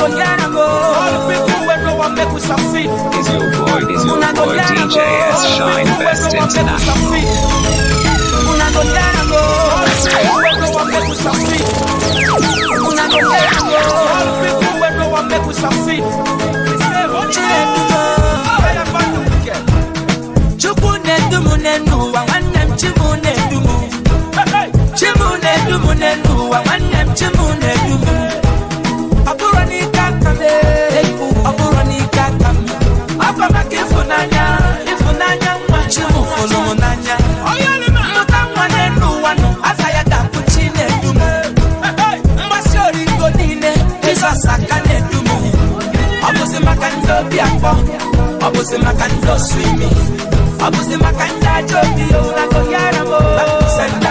go get go. All the people where no one make us succeed. Is your boy, is your Una boy, DJ S Shine Best International. Una go get go. All the people where no one make us succeed. Una go get go. All the people where no one make us succeed. Chukunedumune nuwa wanem chimune dumu Chimune dumune nuwa wanem chimune dumu abuzima kandoswimi abuzima kandacobiyo oh, nakonyaramo bakusanda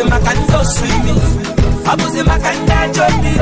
abuzima kanizoswimi abuzima kanitajomi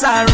sorry.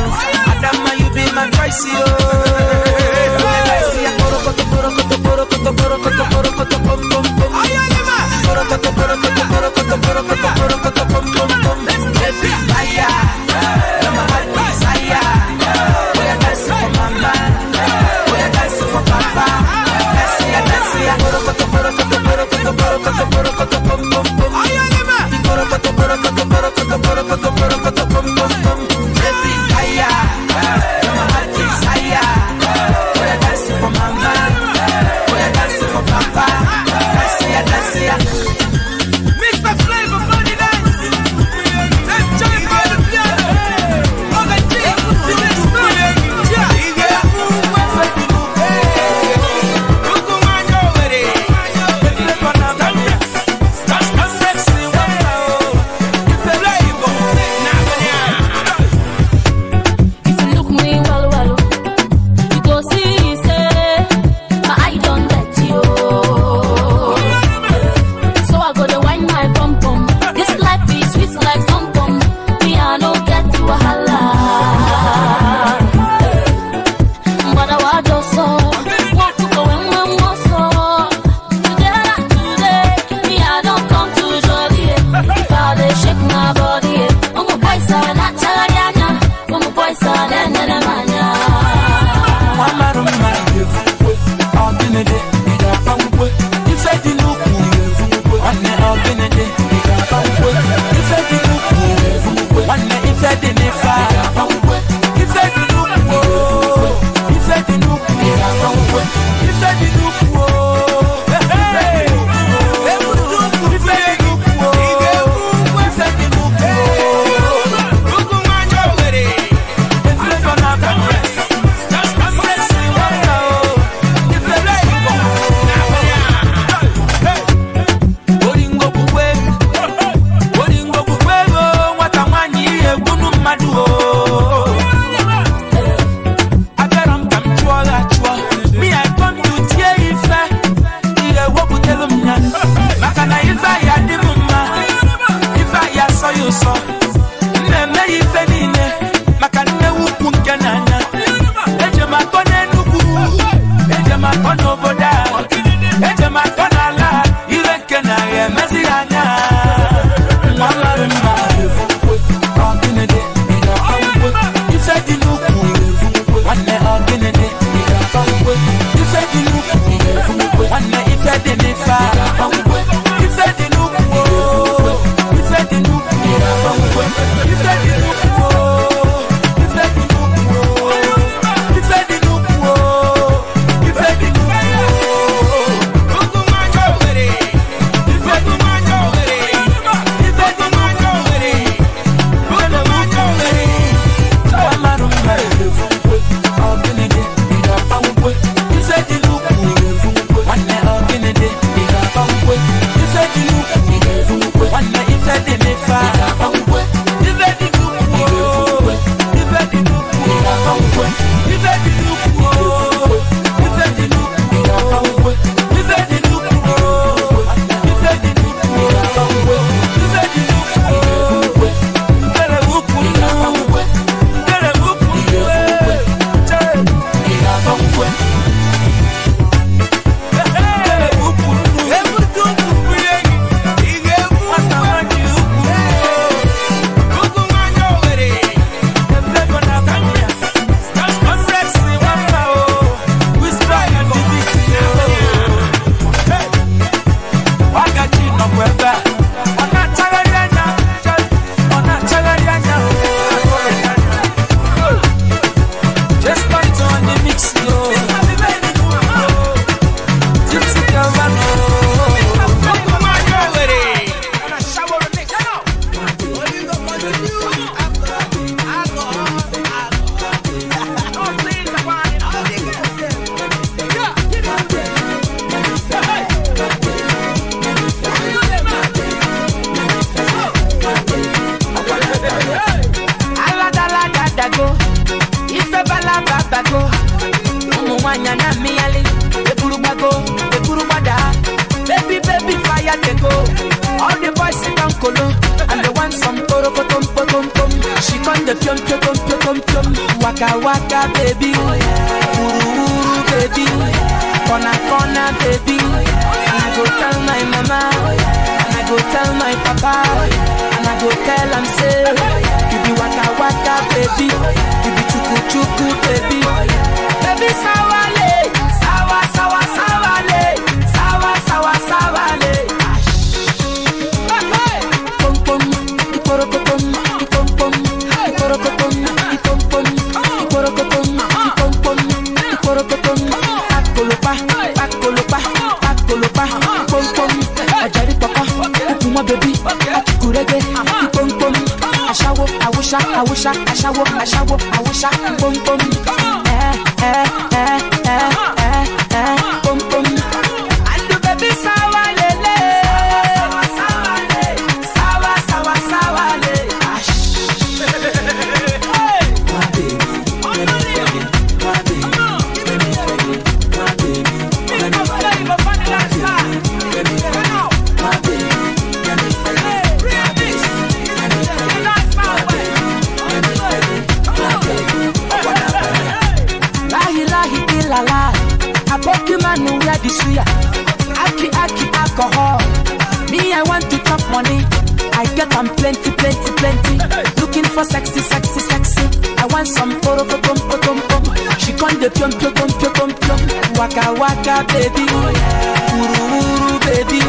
baby.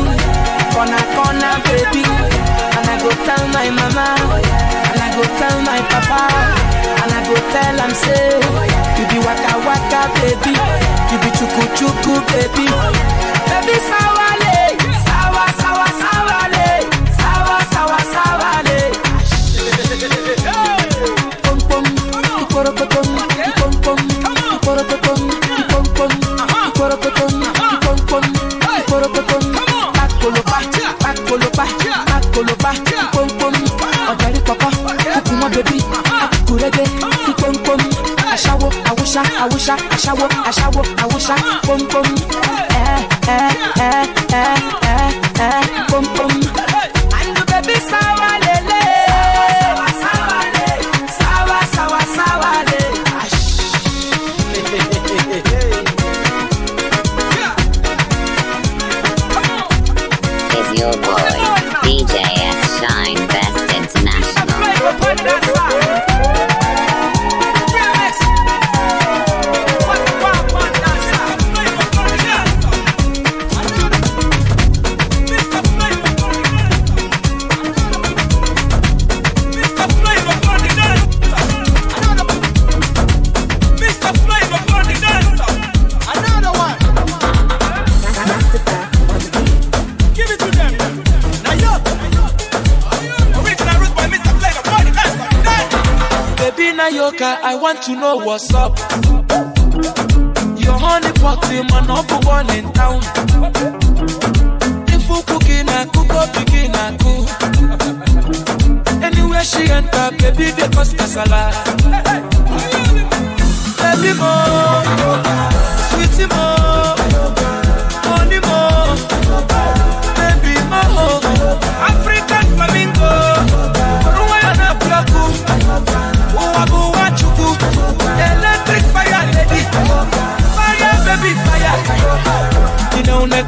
baby. And I go tell my mama. And I go tell my papa. And I go tell say, you be waka waka, baby. You be chuku chuku, baby. Baby, sour. I wish I, I shower, I shower, I wish I, boom boom. waka, I want to know what's up. Your honey pot, my number one in town. If you cooking, I cook up, begin, I cook. Anywhere she enter, baby, they cause casala. Baby, more, sweetie, more, honey, more, baby, more, African flamingo, Ruana Plaku electric fire lady, fire baby fire. Inaune,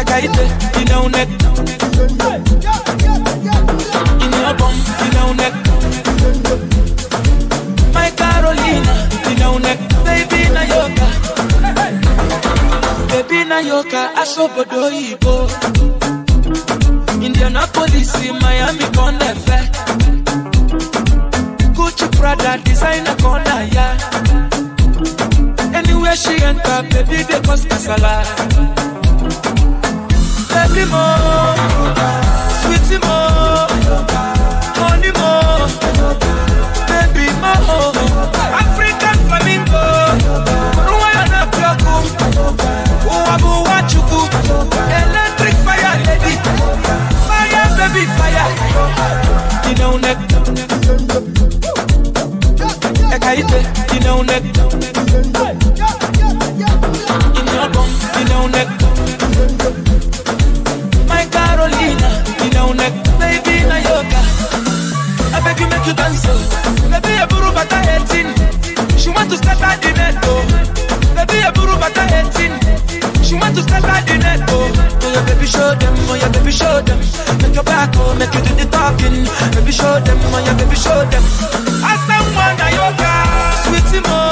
ekaite, inaune, inabom, inaune. My Carolina, inaune, baby na yoka, baby na yoka, asobodo ibo. Indianapolis, Miami, Bon Effet. Gucci Prada, designer, corner, yeah. Anywhere she enter, baby, they cause casala. Baby, mo, sweetie, mo, honey, mo, baby, mo, African flamingo, Rwanda, Plaku, Uwabu, Wachuku, Eleto baby fire. Dino neck. Ekaite, dino neck. In your bum, dino neck. My Carolina, dino neck. Baby, na yoga. I beg you make you dance. Oh. Baby, a buru bata hating. She want to step out the net, oh. Baby, a buru bata hating. She want to step out the net, oh. Oh, your baby show them, oh, your baby show them take your back home, make you do the talking. Baby, show them, man, yeah, baby, show them. I send one, I yoga, sweetie, more.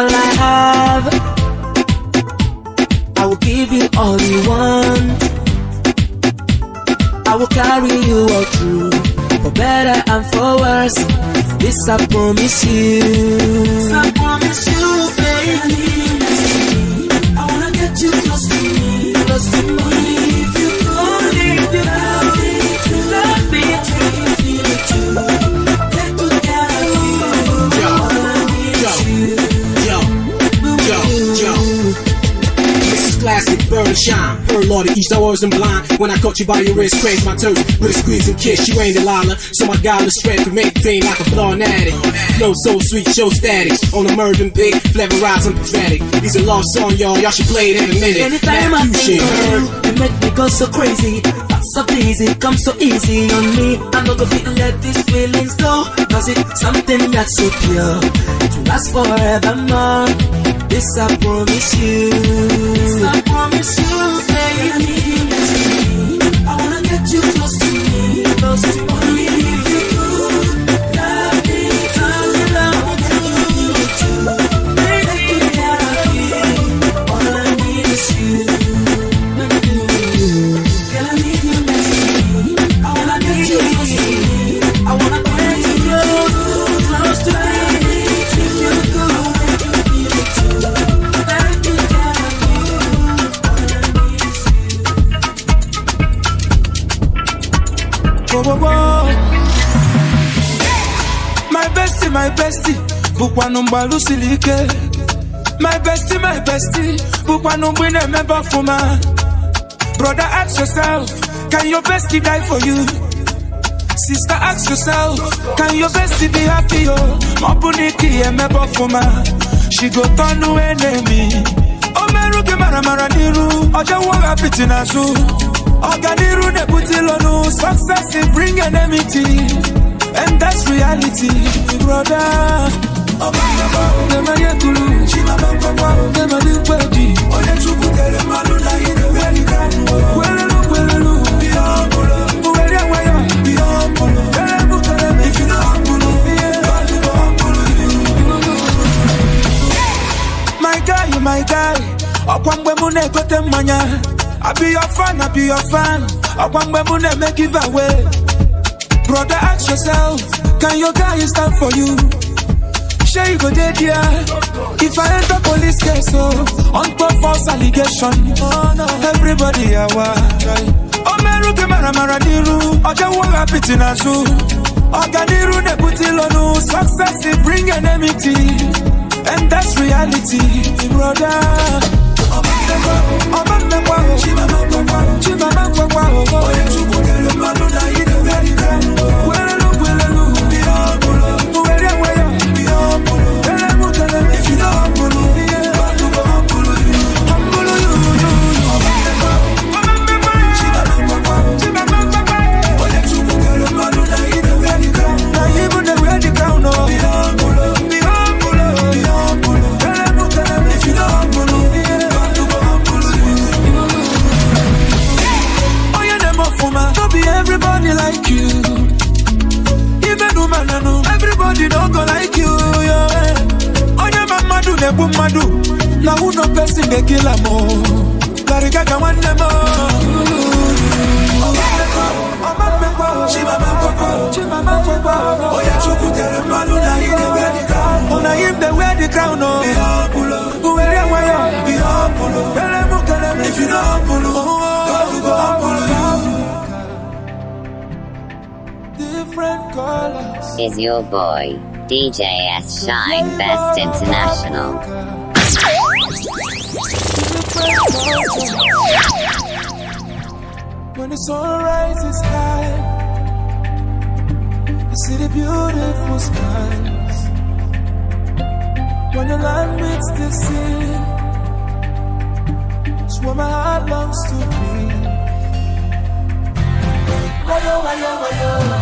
all I have. I will give you all you want. I will carry you all through, for better and for worse. This I promise you. This I promise you, baby. I wanna get you close to me, close to me. If you could, if you love me, if me, if classic bird and shine. Her lordy, east, I wasn't blind. When I caught you by your wrist, cranked my toes with a squeeze and kiss. You ain't Delilah, so my the strength can maintain like a blonde addict. Flow so sweet, show static. On a Mervyn big, I'm pathetic. These a lost song, y'all. Y'all should play it in a minute. Anytime I think make me go so crazy. That's so easy, come so easy on me. I know gonna let these feelings go. Cause it's something that's so pure. It will last forevermore. This I promise you. This I promise you. bụkwanụ mgbalụ siri ike my bestie my bestie bukwa mgbe ị na-emebe brother ask yourself can your bestie die for you sister ask yourself can your bestie be happy o ma ọ bụ na ike ya she go turn enemy o merụ gị mara mara n'iru ọjọwụ hapiti n'azụ ne na-ebute lonu. success bring enmity and that's reality brother. Dem a ye kulu, My guy, my guy, ọkwa mgbe mụ I be your fan, I be your fan. Ọkwa mgbe mu Brother, ask yourself, can your guy stand for you? sure you go there, dear. If I enter police case, oh, on top false allegation. Oh, no. Everybody, I want. Omeru ke mara mara diru, in wo rapiti na zu. Oganiru ne puti lonu, success it bring enmity. And that's reality, brother. Obamekwa, Obamekwa, Chimamekwa, Chimamekwa, Chimamekwa, Chimamekwa, Chimamekwa, Chimamekwa, Chimamekwa, Chimamekwa, Chimamekwa, Chimamekwa, Chimamekwa, Chimamekwa, Chimamekwa, Chimamekwa, Chimamekwa, Chimamekwa, boy, DJ S Shine Best International. When the sun rises high, I see the beautiful skies. When the land meets the sea, it's where my heart longs to be. Why, oh, why, oh, why, oh.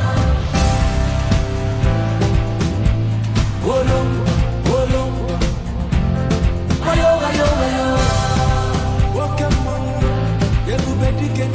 Get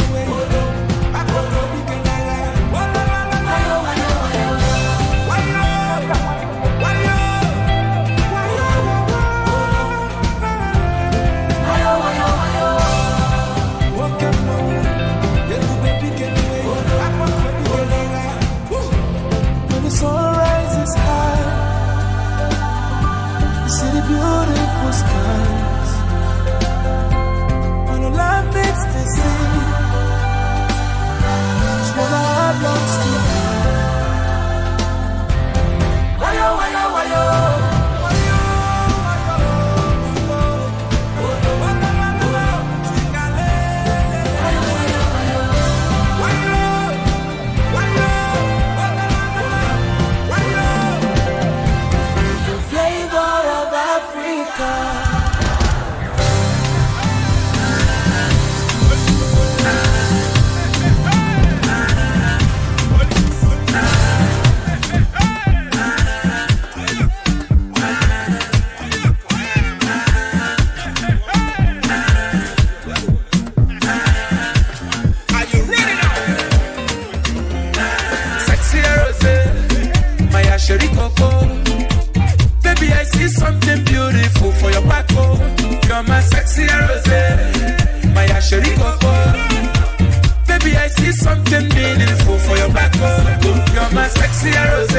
my sexy rose.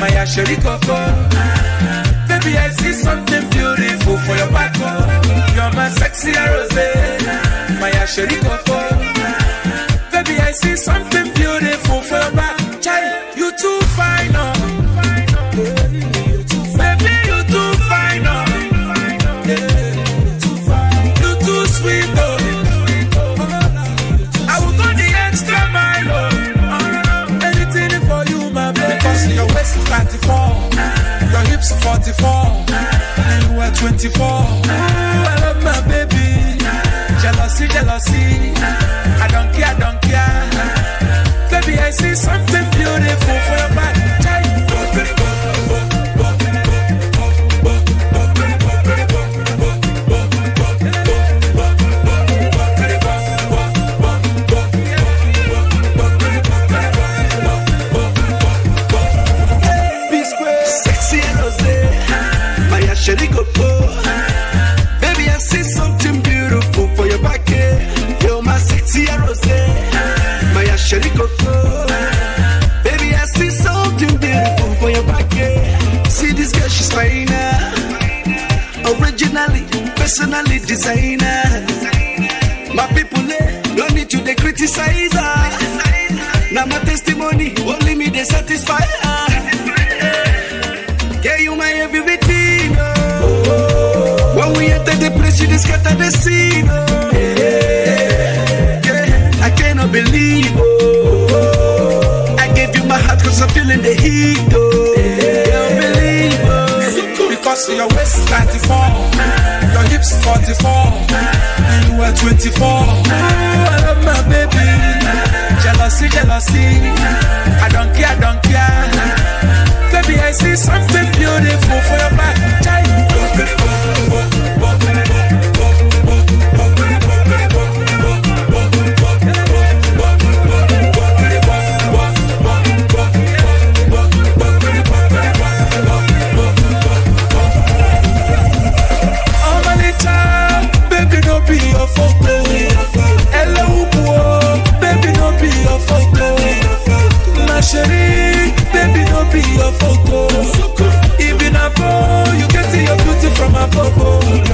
My Asheri Coco. Baby, I see something beautiful for your back. You're my sexy rose. My Asheri Coco. Baby, I see something. 24. I love my baby. Jealousy, jealousy. I don't care, I don't care. Baby, I see some. personally designer. My people, eh, don't need to they criticize her. Now my testimony, only me they satisfy her. Yeah, you my everything. When we enter the place, you just scatter the scene. Eh. Yeah, I cannot believe. Oh. I gave you my heart cause I'm feeling the heat. Oh. Yeah, I believe. Oh. Because your waist 34 hips 44. You are 24. You are my baby. Jealousy, jealousy. I don't care, I don't care. Baby, I see something beautiful for your back.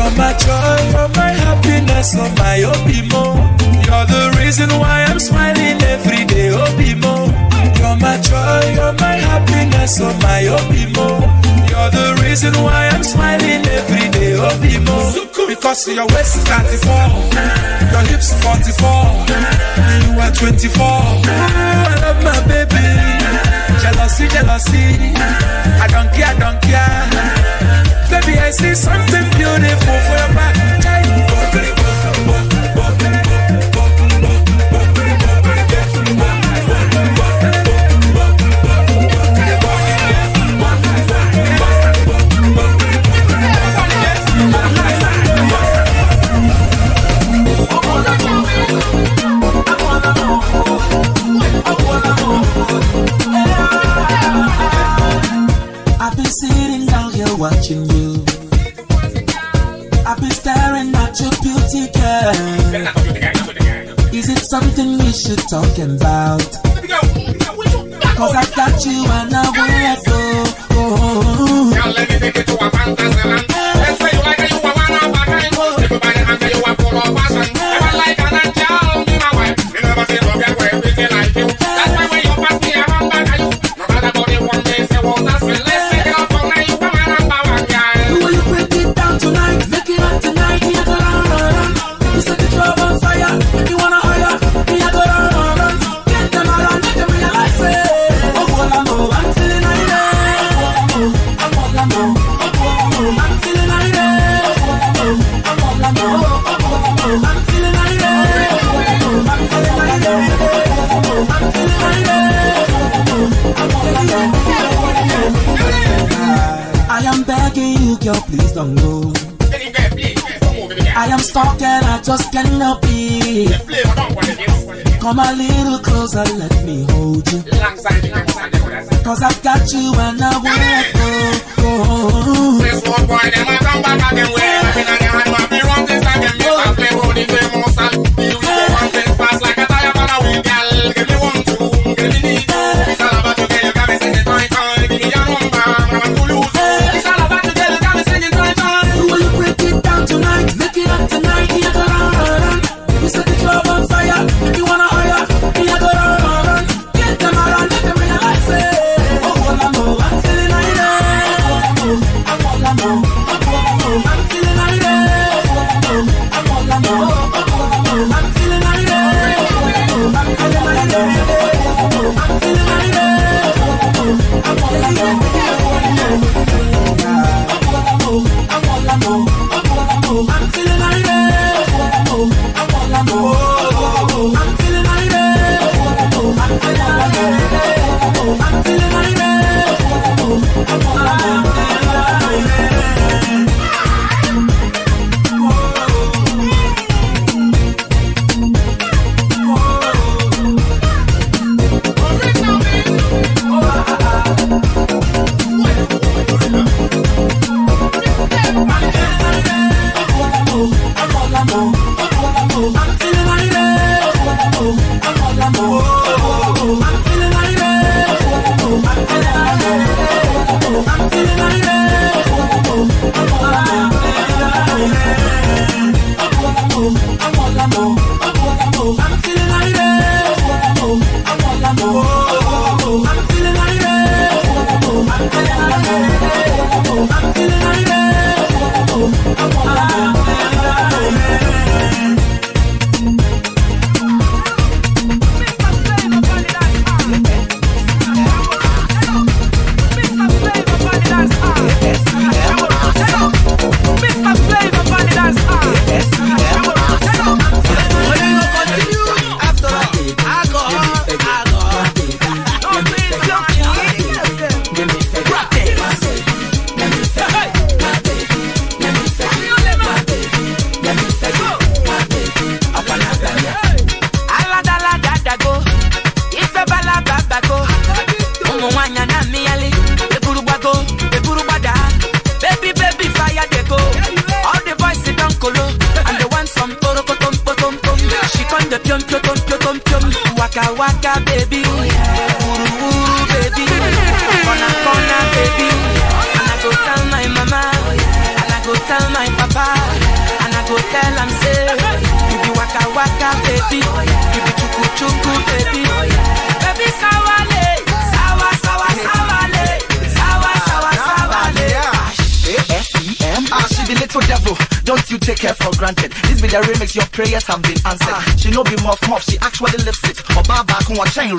You're my joy, you're my happiness, oh are my Obimo. You're the reason why I'm smiling every day, Obimo. You're my joy, you're my happiness, oh are my Obimo. You're the reason why I'm smiling every day, Obimo. Because your waist is 34, your hips 44, and you are 24. I love my baby. Jealousy, jealousy. I don't care, I don't care.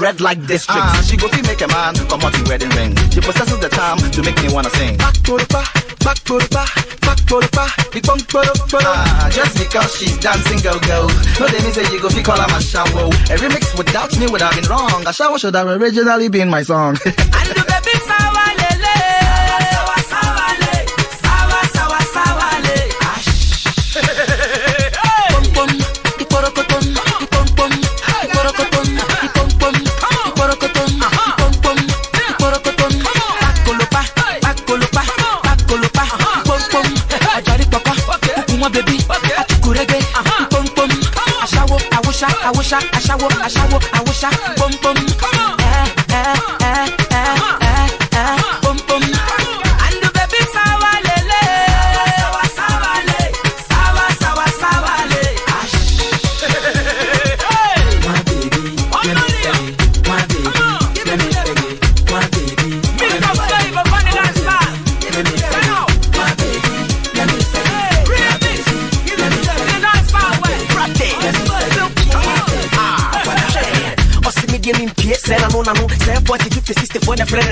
red like this, Uh, she go see make a man come out in wedding ring. She possesses the charm to make me wanna sing. Back to the back, back to the back, back to the back, the punk to the back. just because she's dancing, go go. No, they mean say you go fi call her my shower. Every mix without me would have been wrong. A shower should have originally been my song. Asha, Asha, wo, Asha, wo, I bum bum. Come on.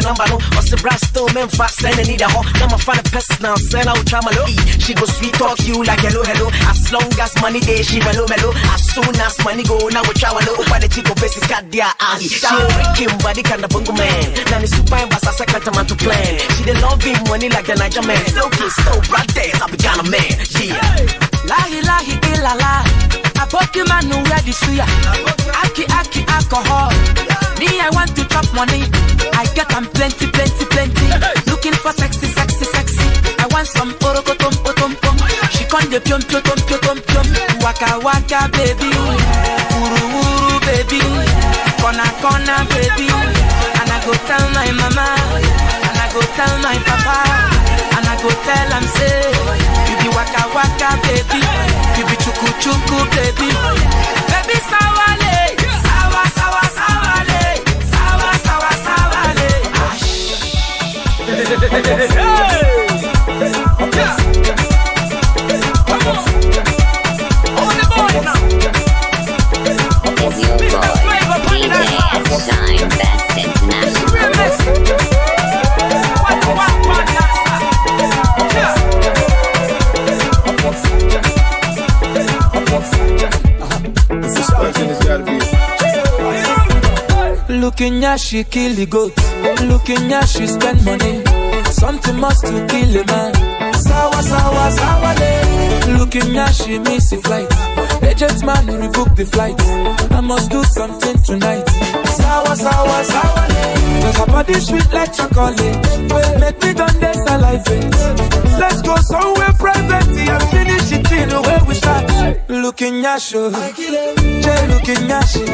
number no Or the brass still men and need a Now my find a pest now send out try my low She go sweet talk you like hello hello As long as money day she mellow mellow As soon as money go now we try low Over the chico basic got their ass She a wicked body kind of bungo man Now the super boss as I can't man to plan She the love him money like the Niger man Slow kiss, slow broad dance, I be kind of man, yeah Lahi lahi illa eh, la na pokemon wey dey see ya aki aki alcohol me i want to chop money i get am plenty plenty plenty looking for sexy sexy sexy i want some orokotom otompom she con dey piom piom piom piom piom waka waka baby Uru, uru, baby Kona, kona, baby and i go tell my mama and i go tell my papa and i go tell am say you be waka waka baby chuku chuku baby. Baby sawale, sawa sawa sawale, sawa sawa sawale. Shine Best International. Looking at she kill the goat. Looking at she spend money. Something must to kill a man. Sour, sour, sour day. Looking at she miss the flight. Agent man who rebook the flight. I must do something tonight. Sour, sour, sour. Cause her body sweet like chocolate. Make me done this alive. Let's go somewhere private. I'm it till the way we start. Looking at you. Jay looking at you.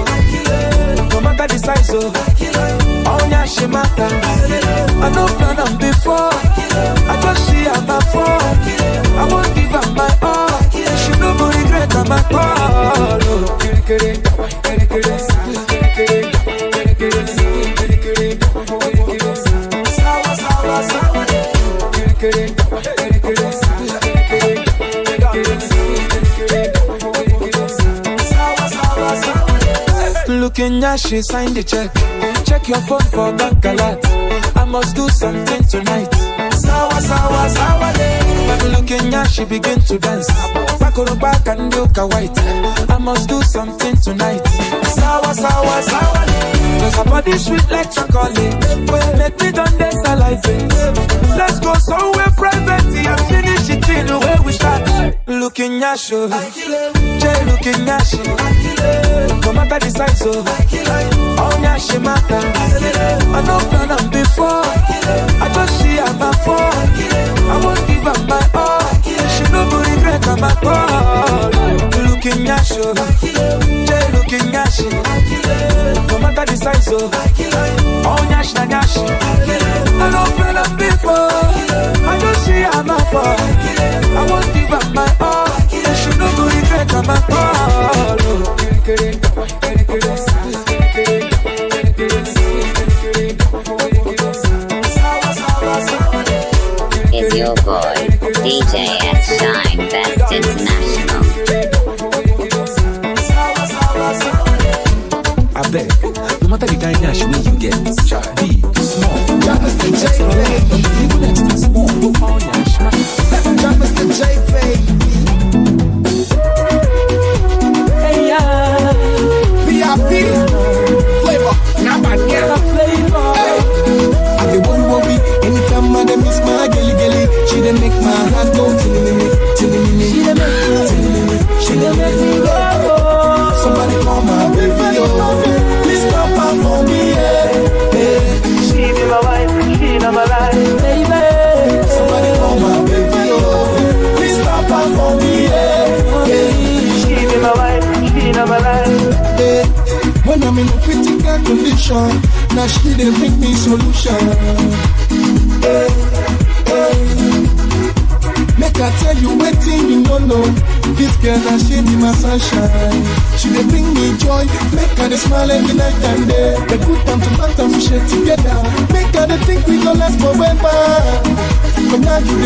No matter the size, oh. On your she matter. I know plan on before. I just see her my phone. I won't give up my all. She know kata makolo Kerekere, kerekere, kerekere, Looking she signed the check Check your phone for bank alert I must do something tonight Sawa, sawa, sawa day Looking at she begin to dance gonna back and look a white. I must do something tonight. Sour, sour, sour. Cause her body sweet like chocolate. Make me done this alive. Let's go somewhere private and finish it in the way we start. Looking at you. Jay looking at you. No matter the size, so. Oh, yeah, she matter. I know plan before. I just see I'm a before. I won't give up my like I'm a ball. Looking at you, Jay looking at you. No matter the size of, oh nyash na nyash. I love you before.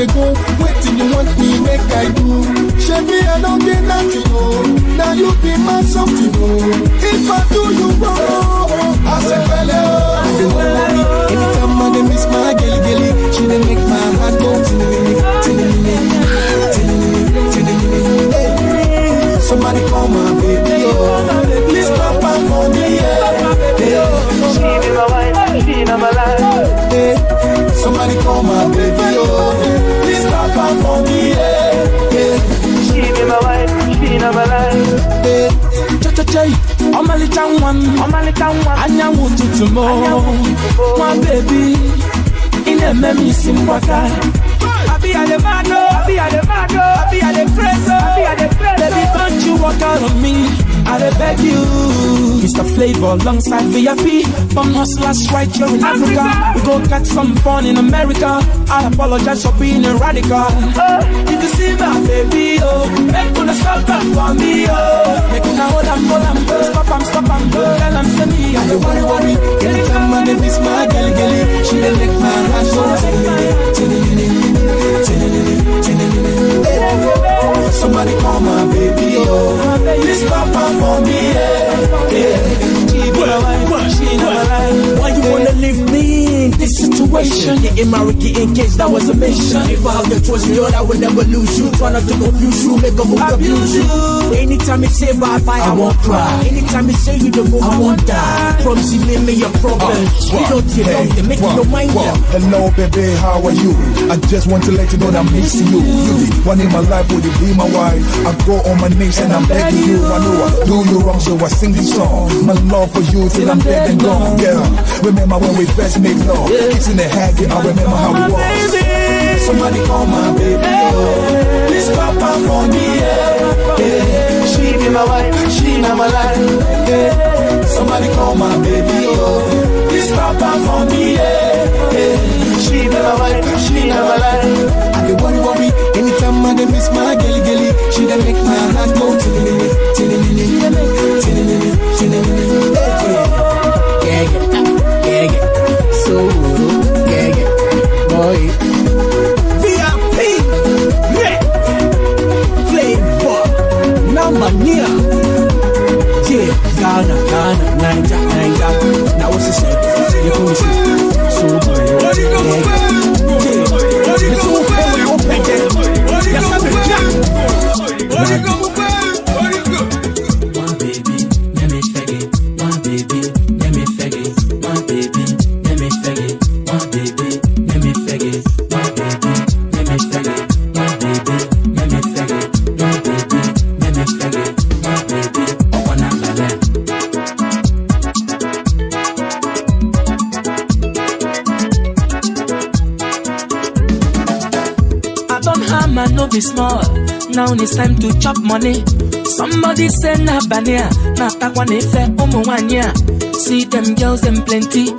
they do? Waiting you want me make I do? Chevy, I don't get nothing, oh. Now you be my something, oh. jẹjẹ ọmọlẹ́ta wọn anyanwó tuntun mọ́ wọn bèbí ilé mẹ́mí sí mbọ́tà. Abi ale mado, abi ale abi ale abi ale preso. Baby, don't you walk out on me. I beg you, Mr. Flavor alongside VIP. From hustlers right here in Africa. Africa. We go catch some fun in America. I apologize for being a radical. Oh. If you see my baby, oh, make gonna stop that for me, oh. Make gonna hold and hold and go. Stop and stop and go. Tell and send me. I don't worry, worry. Anytime my name is my girl, girl. She done make my heart go. Tinny, tinny, tinny, tinny, tinny, tinny, tinny, tinny, tinny, tinny, tinny, tinny, tinny, tinny, Somebody call my baby, oh. Please papa for me, yeah. yeah. She never lie. Why you wanna leave me? in this situation. Getting married, in case that was a mission. If I have the choice, Lord, I will never lose you. Try not to confuse you, make a move, abuse you. Anytime you say bye bye, I won't cry. Anytime you say you don't move, I won't die. Promise you made me your problems. Uh, you don't care hey, up, make well, your mind up. Hello, baby, how are you? I just want to let you know that I'm missing you. You the one in my life, will you be my wife? I go on my knees and I'm begging you. I know I do you wrong, so I sing this song. My love for you till I'm dead and gone. Yeah, remember when we first made love door. Yeah. Kitchen and hacky, I remember how we was. Baby. Somebody call my baby. Yeah. This papa for me. Yeah. Yeah. She be my wife, she not my life. Yeah. Somebody call my baby. oh, This papa for me. Yeah. Yeah. She be my wife, she not my life. I be worry, worry. Anytime I dey miss my girl, girl, she done make my heart go tilly, tilly, tilly, tilly, tilly, tilly, tilly, tilly, tilly, tilly, tilly, tilly, so yeah, yeah, boy. VIP, yeah, flavor, number near. Yeah, Ghana, Ghana, Niger, Niger. Now what's the You so boy, yeah, open, yeah. down, it's time to chop money. Somebody say na banya ah, na takwane fe umwanya. See them girls, them plenty.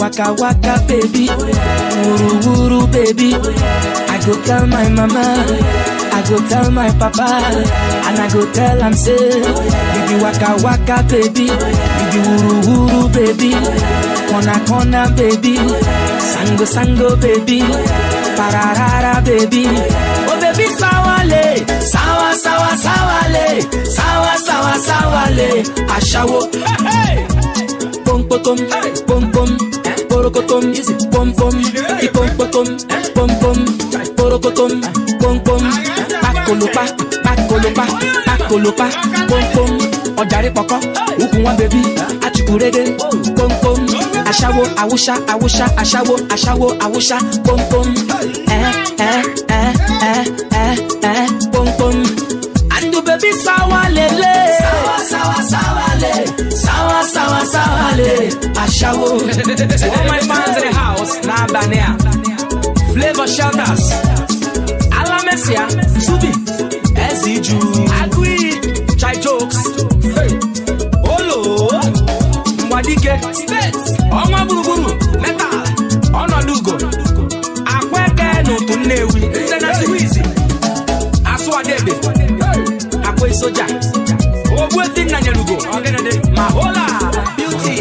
Waka waka baby, wuru wuru baby. I go tell my mama, I go tell my papa, and I go tell them say, baby waka waka baby, baby wuru wuru baby, corner corner baby, sango sango baby, pararara baby. baby sáwálé sáwá sáwá sáwálé sáwá sáwá sáwálé àṣàwò. pompotom pompom porokotom pompom ipompotom pompom porokotom pompom pakolopa pakolopa pakolopa pompom ọ̀dàrí pọ̀kọ́ òkun wọn bẹ̀bí àtìkúrédé pompom aṣáwó awúṣá awúṣá aṣáwó aṣáwó awúṣá pompom ẹ ẹ ẹ ẹ. ashawo to all my fans in the house n'abalị a flavor Shelters, ala mesia subi ezi ju agụiyi chai jokes olo mgbadike steeti ọnwa gburugburu metal ọnọdụ ugo akwa eke n'otu nnewi nze na Debe, asụwadebe akwa soja ogbuetinna nyere ugo ma hola beauty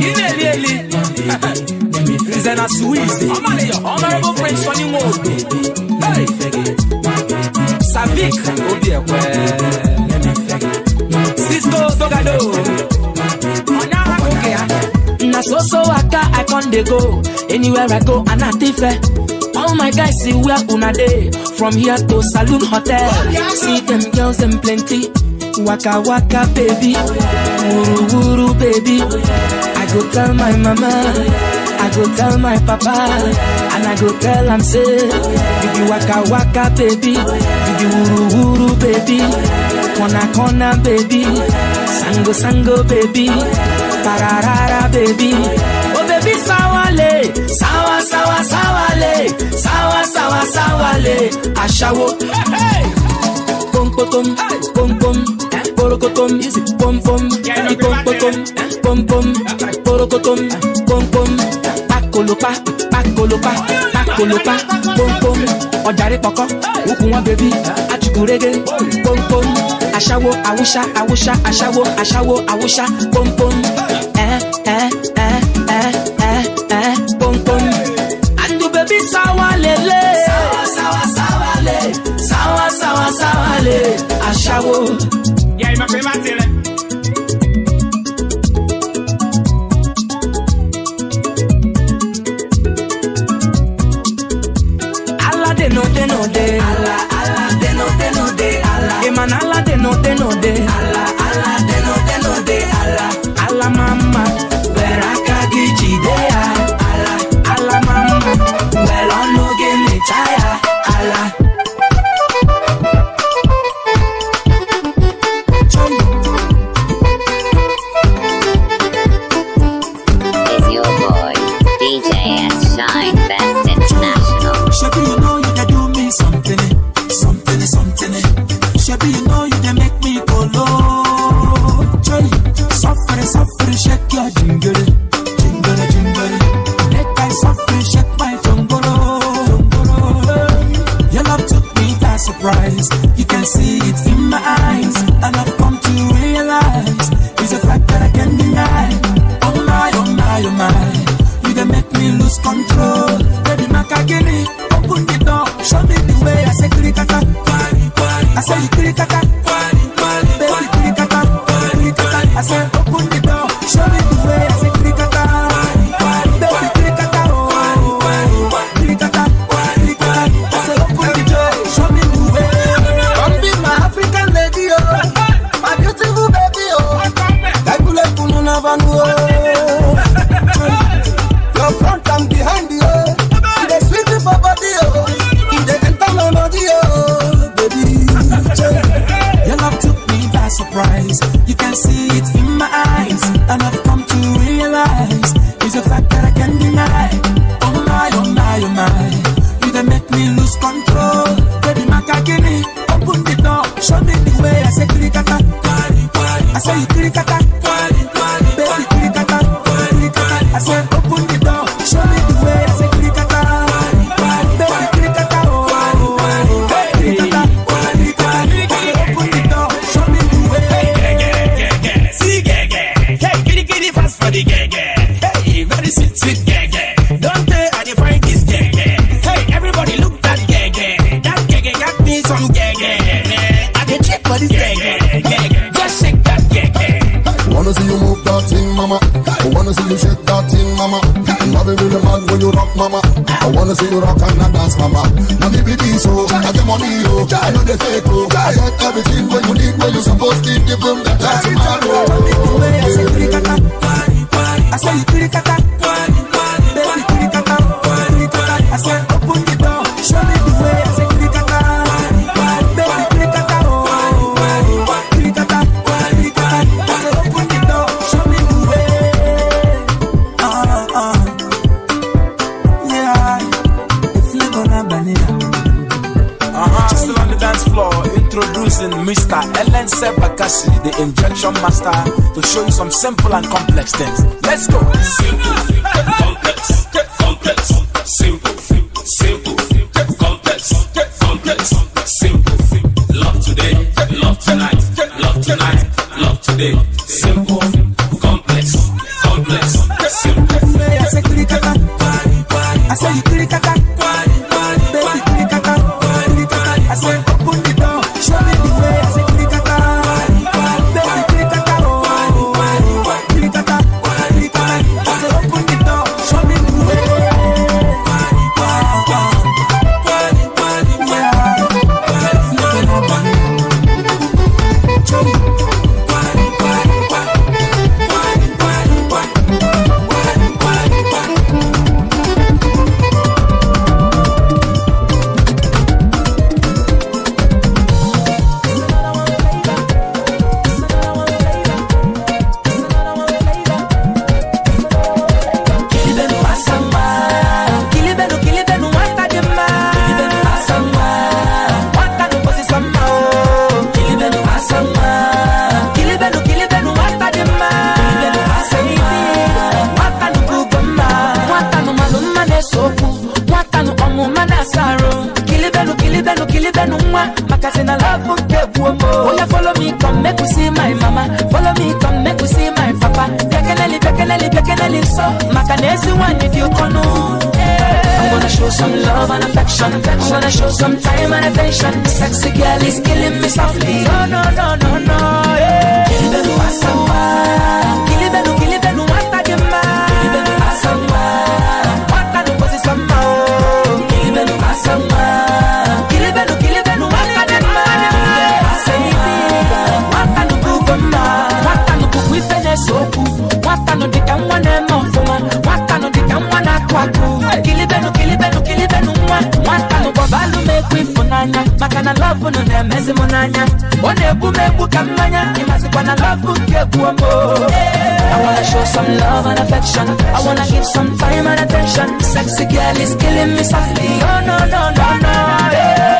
ilé ilé ilé zena sweet baby, honourable prince for new world savik obi ẹkwẹ cisco dogado ọ̀nà àkókè ya. Ah. na so so waka i con dey go anywhere i go ana ti fẹ. All my guys see where una day From here to Saloon Hotel oh, See them girls them plenty Waka waka baby oh, Wuru wuru baby oh, go tell my mama, I go tell my papa, and I go tell am say, if you waka waka baby, if you wuru wuru baby, kona kona baby, sango sango baby, pararara baby, oh baby sawale, sawa sawa le, sawa sawa sawale, ashawo. Hey, hey. pom pom pom porokotom pom pom pom pom pom pom porokotom pom pom pakolopa pakolopa pakolopa pom pom ọjàre pọkọ wúkú wọn bèbí atukurege pom pom aṣáwo awúṣá awúṣá aṣáwo aṣáwo awúṣá pom pom. me prima tile Makanesi one if you kono I'm gonna show some love and affection I'm gonna show some time and attention Sexy girl is killing me softly No, no, no, no, no, yeah Baby, I I wanna show some love and affection. I wanna give some time and attention. Sexy girl is killing me softly. No, oh, no, no, no, no. Yeah.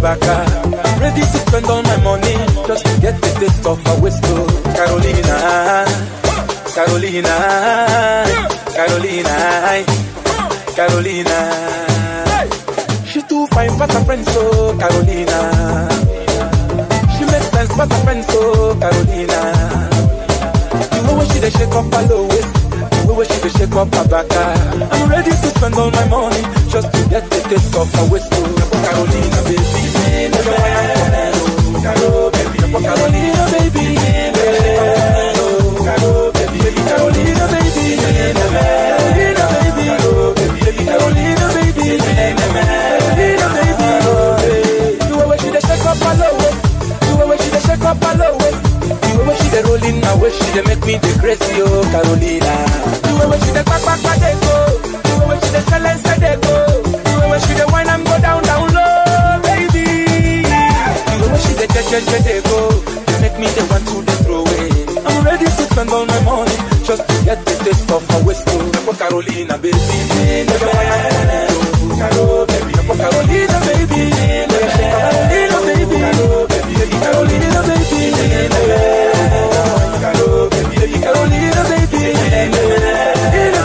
Kabaka. Ready to spend all my money just to get the taste of a whistle. Carolina, Carolina, Carolina, Carolina. She too fine, but a friends so oh, Carolina. She makes sense, but a friends so oh, Carolina. You know when she dey shake up her low waist. You know when she dey shake up her back. Ah. I'm ready to spend all my money just to get the taste of a whistle. Carolina, baby for Carolina, baby. Carolina, baby. Carolina, baby. Carolina, baby. Carolina, baby. Carolina, baby. they make me the crazy, oh Carolina. You always see the back back back go. You always see the silence they go. You always see the wine and go down down. the change they go. make me the one to the throw away. I'm ready to spend all my money just to get the taste of a whiskey. Carolina, baby. Nepo Carolina, baby. baby, Carolina, baby. Carolina, baby. Carolina, baby. Carolina, baby. Carolina, baby.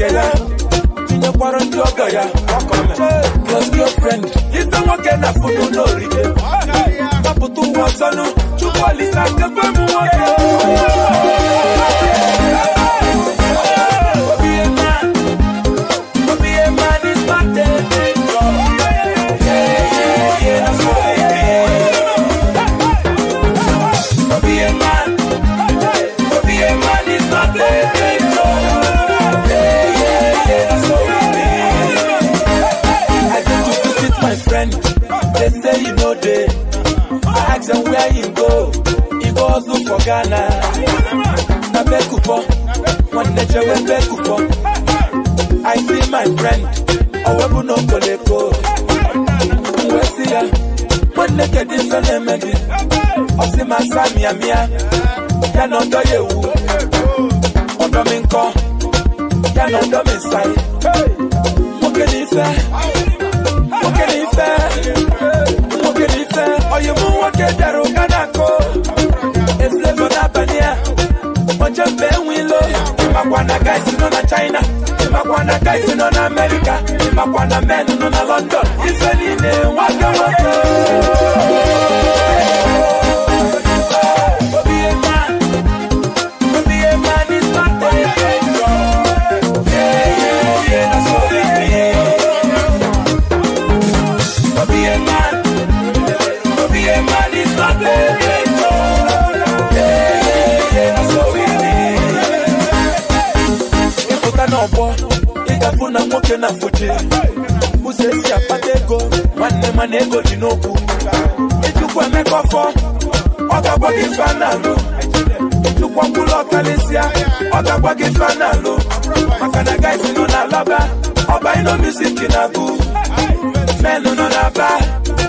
nwoke ya tinyekwara ndị ọgọ ya plus girlfriend ife nwoke na foto n'orige gbapụta ụwa ọzọnụ chukwu olisa kebe m nwoke and where you go, you go look for Ghana. Na beku for, one nature we beku for. I see my friend, awebu no koleko. Nwesi ya, one naked different megi. Osi masami ya mia, ya no do yewu. Odo oh, mi nko, ya no do mi sai. Mokeni ife, mokeni ife. oyibo nwoke dara ụka na akụ eflevo n'abalị a onye mgbe enwelo makwa na guys nọ na china makwa na guys nọ na amerika makwa na men nọ na london in niile nwoke nwoke ife na mfoche ụzọ esi akpata ego nwanne mana ego ji n'okwu ịjụkwa emeka ọfọ ọ ga-agwa gị ife a na-alụ ọkalịsịa ọ ga-agwa gị ife na-alụ maka na gaisi nọ na alaba ọba ino music na-agụ Menụ nọ n'aba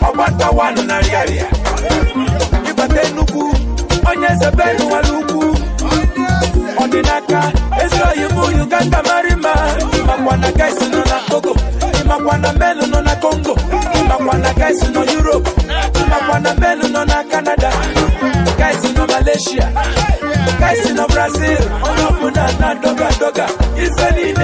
ọgbatawanụ na rịarịa ịbata onye ezebe Eu n'aka ezuro oyibo uganda mara mma ịmakwa na gaisi nọ na togo ịmakwa na melu nọ na congo ịmakwa na gaisi nọ europe ịmakwa na melu nọ na canada gaisi nọ malaysia gaisi nọ brazil ọnọbụ na na doga doga ife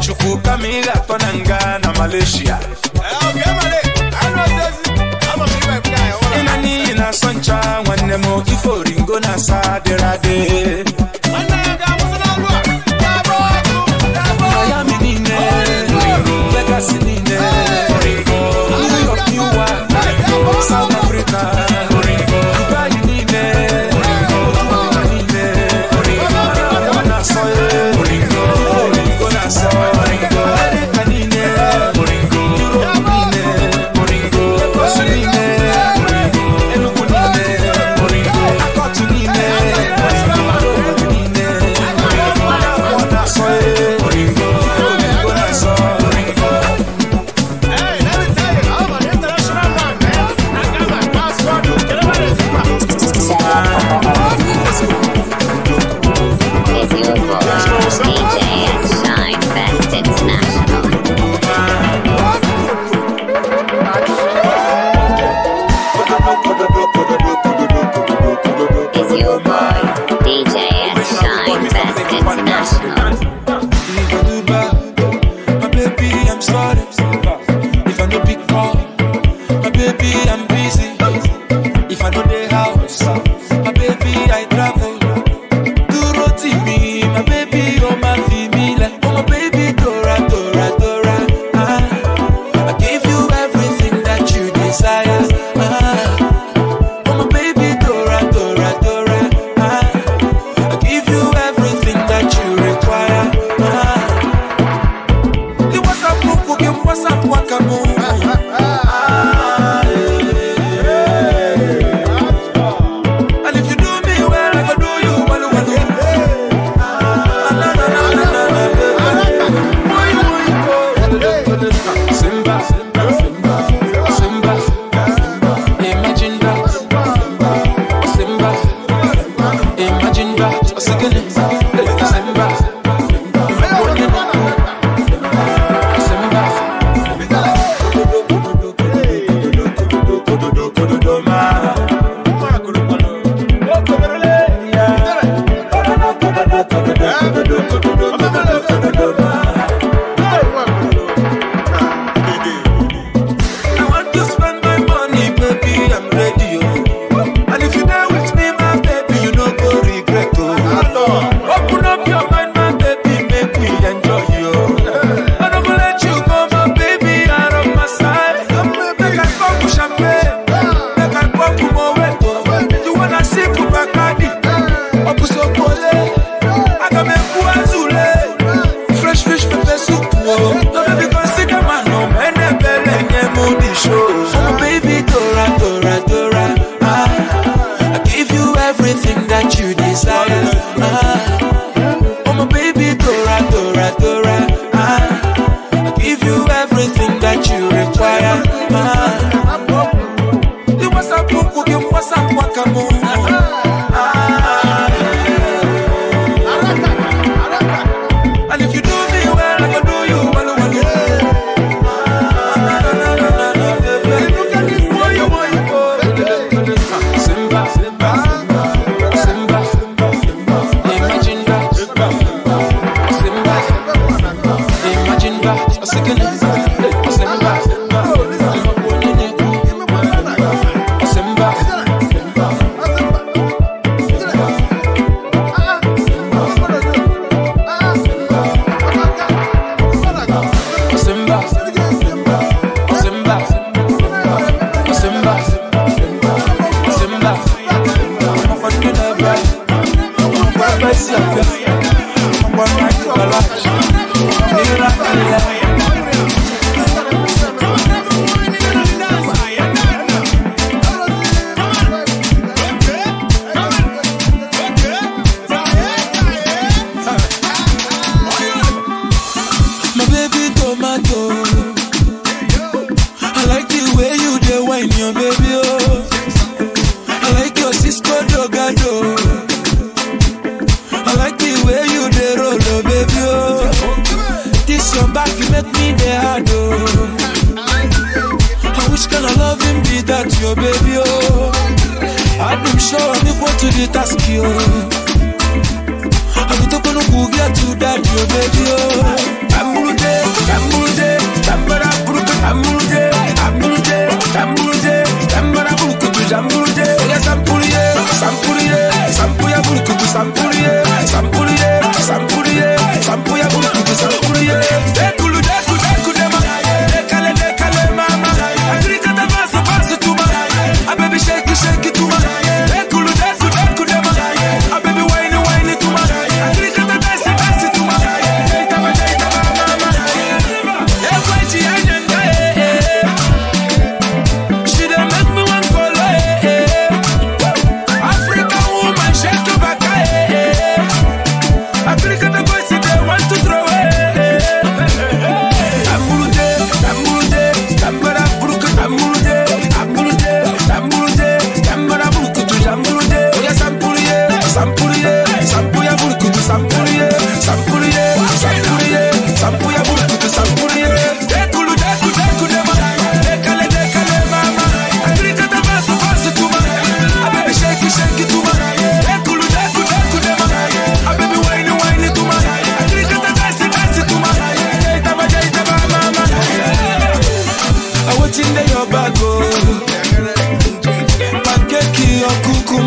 chukuka migato nanga na malaysia inani na sancha nwanne m na asa dịrị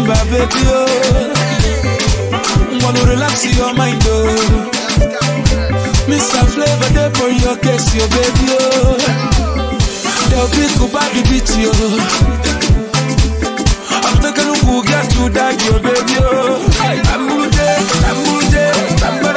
remember, baby. Oh. Want to relax your mind, oh. Mr. Flavor, there for your case, your baby. Oh. They'll pick up baby the beach, yo. I'm taking a look at you, that, your baby. Oh. I'm good, I'm good, I'm good.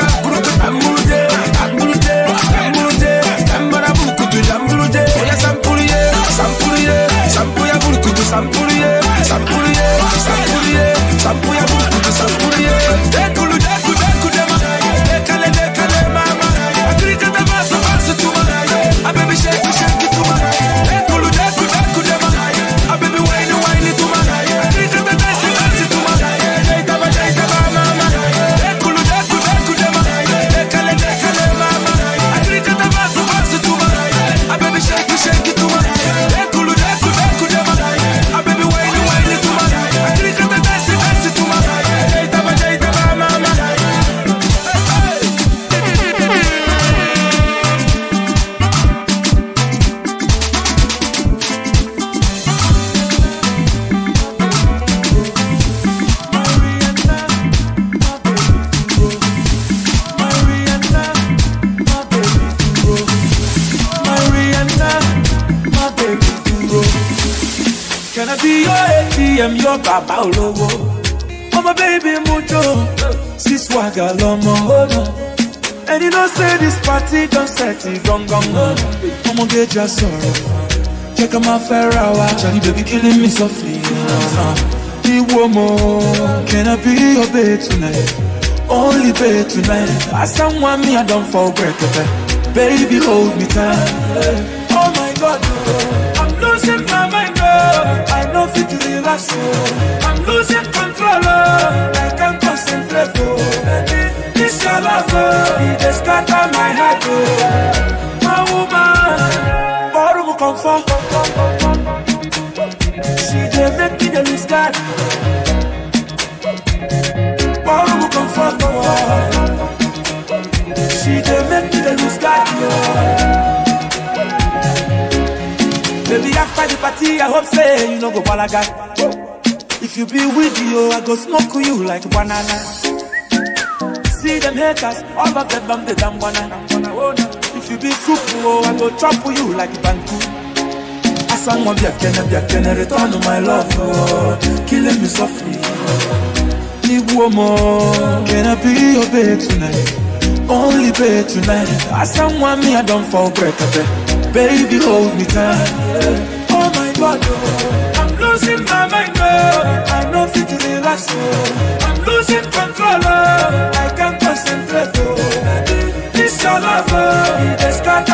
lọ́wọ́ bàbá olówó. ọmọ bẹ́ẹ̀bì mú jò sí swagger lọ́mọ ọ̀nà. and you don't say this party don set it gangan ọ̀nà. ọmọge jà sọ̀rọ̀ jẹ́ ká máa fẹ́ ra wa. Charlie baby killing me softly. Iwo mo, can I be your babe tonight? Only babe tonight. As someone me I don fall break, baby hold me tight. Oh my God. Oh to relax, oh. I'm losing control, oh. I can't concentrate, oh. Baby, this your love, oh. It just scatter my heart, oh. My woman, borrow comfort. She just make me the lose God. Borrow comfort, oh. She just make me lose God, oh. Baby, after the party, I hope say you no go balaga. If you be with you, oh, I go smoke you like banana. See them haters, all of them bam the damn banana. If you be soup, oh, I go chop you like banku. Asangwa biakene biakene, return my love, oh. killing me softly. Oh. Nibu omo, can I be your babe tonight? Only babe tonight. Asangwa me, I don't fall break, I Baby, hold me tight. Oh my God, oh. I'm losing my mind, oh. I know fit to relax, oh. I'm losing control, oh. I can't concentrate, oh. This your love, oh. It's got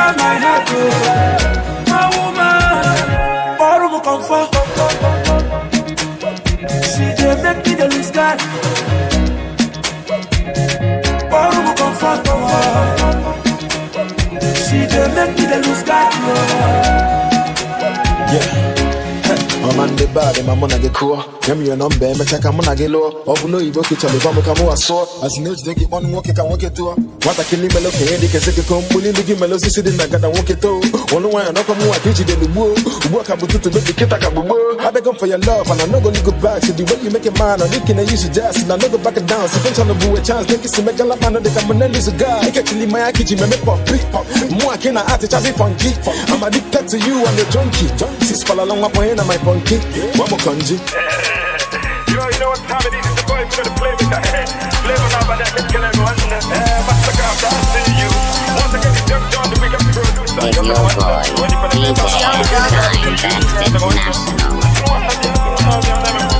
Yeah bad ma muna ge kuo ya mi no mbe me chaka muna ge lo obu no ibo ke chale bamu kamu aso as no jide ge on woke ka woke to wata kini melo ke ndi ke sike ko mbuli ndi ge melo sisi na gada woke to onu wa no ko mu wa kichi de lubu ubu ka bututu be ke ta ka bubu i beg for your love and i no go look back to the way you make it I and you can use it just and i know go back down so fun chana bu a chance think it's make la man de ka muna lose guy ke chili my kichi me me pop pop mu a kina ati chazi funky i'm addicted to you and the junkie six fala long up and my funky Mama kanji. Yo, know what time it is? It's the boys gonna play with the head. Play on let's everyone. I'm eh, you. Once again, it's Young John, the Young John, DJ Young John, International.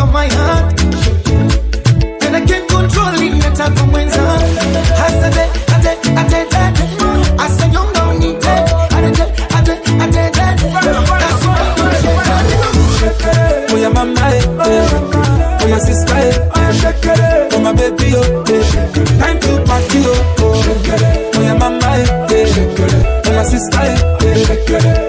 of my heart. Then I can't control it, let her come when I I said, I Oh, yeah, mama, oh. oh, yeah, oh. oh, my baby, oh, time to party, oh, oh mama, sister,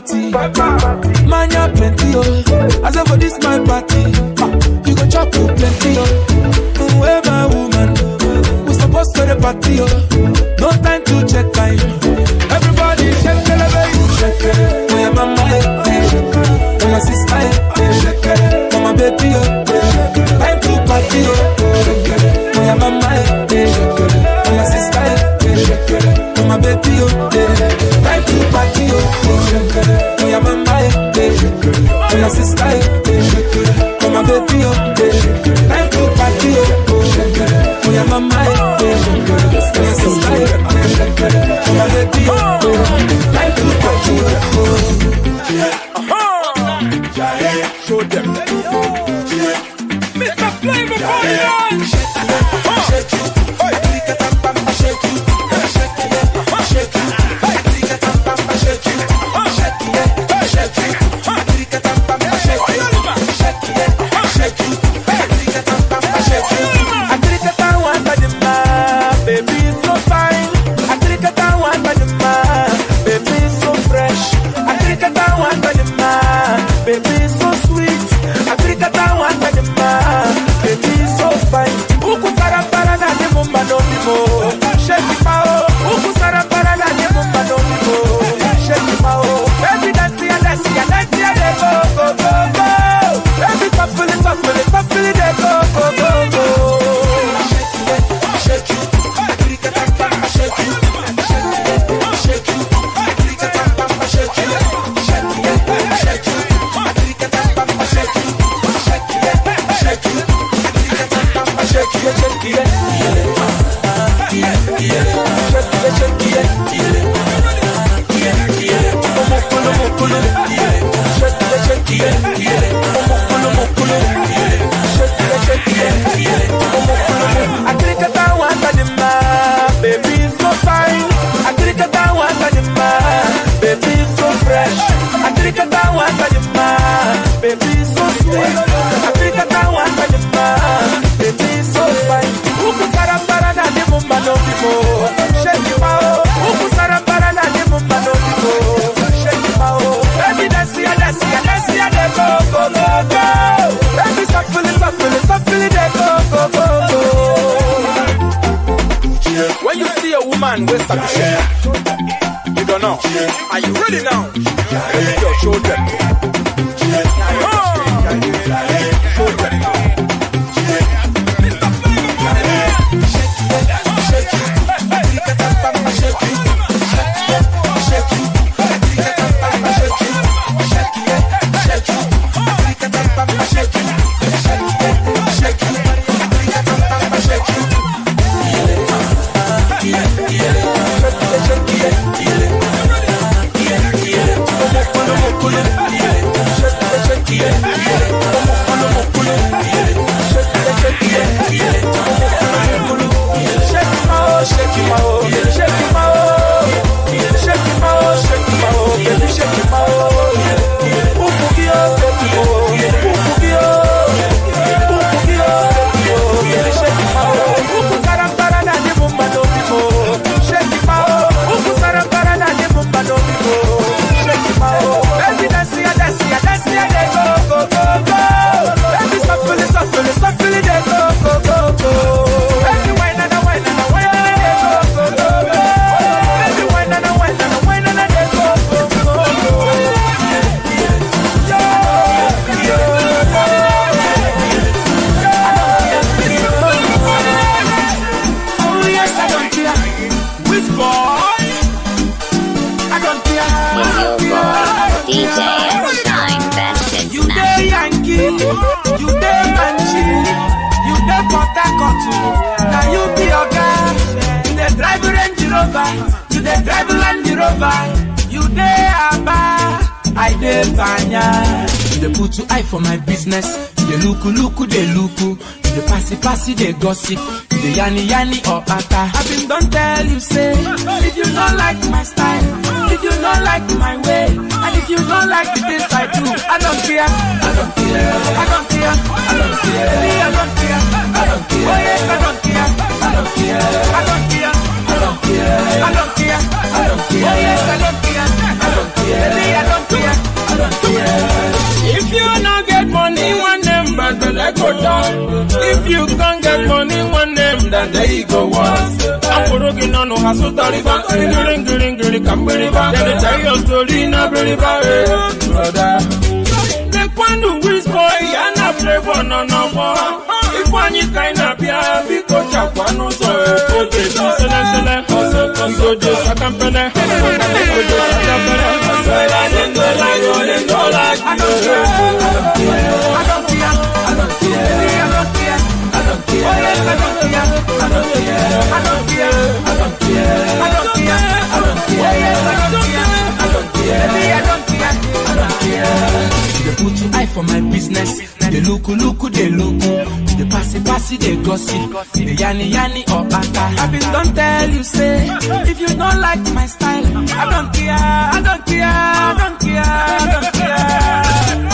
party. and there you go once. Akorogi nanu hasu tariba, ngiri ngiri ngiri kambiriba, then they tell your story na biriba, eh, brother. Nekwandu whisper, yana flavor no no more. Ifeanyi kaina bia, biko cha chakwanu so, eh. Ote shisele sele, igojo sakampele, igojo sakampele. Ngola ngola ngola, I don't care, I don't care. I don't care. I don't care. I don't care. I don't care. I don't care. I don't care. They put your eye for my business. They look, look, they look. They pass it, they gossip. They yanni, yanni, or bata. I have been don't tell you, say, if you don't like my style, I don't care, I don't care, I don't care, I don't care.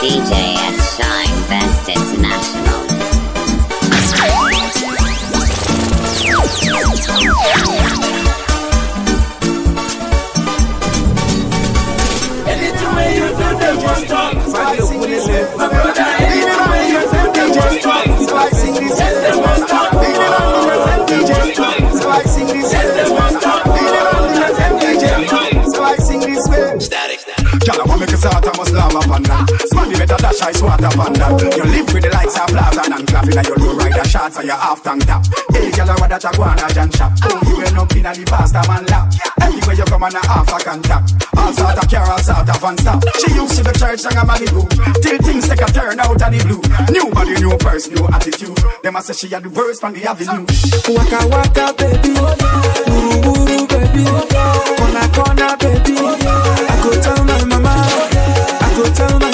DJ S. Shine Best International. Anytime you do, the want make a start, I slam up and down. Man, you better dash I smarter than that You live with the lights of Plaza and traffic And you low rider shots and your half tank tap Hey, girl, I want that iguana jam shop You end up in a the pasta man lap Anyway, you come on a half a contact All sort of care, all sort of and stop She used to the church and a man in Malibu Till things take a turn out of the blue New body, new purse, new attitude Them I say she had the worst from the avenue Waka waka, baby Wuru wuru, baby Corner corner, baby I could tell my mama I could tell my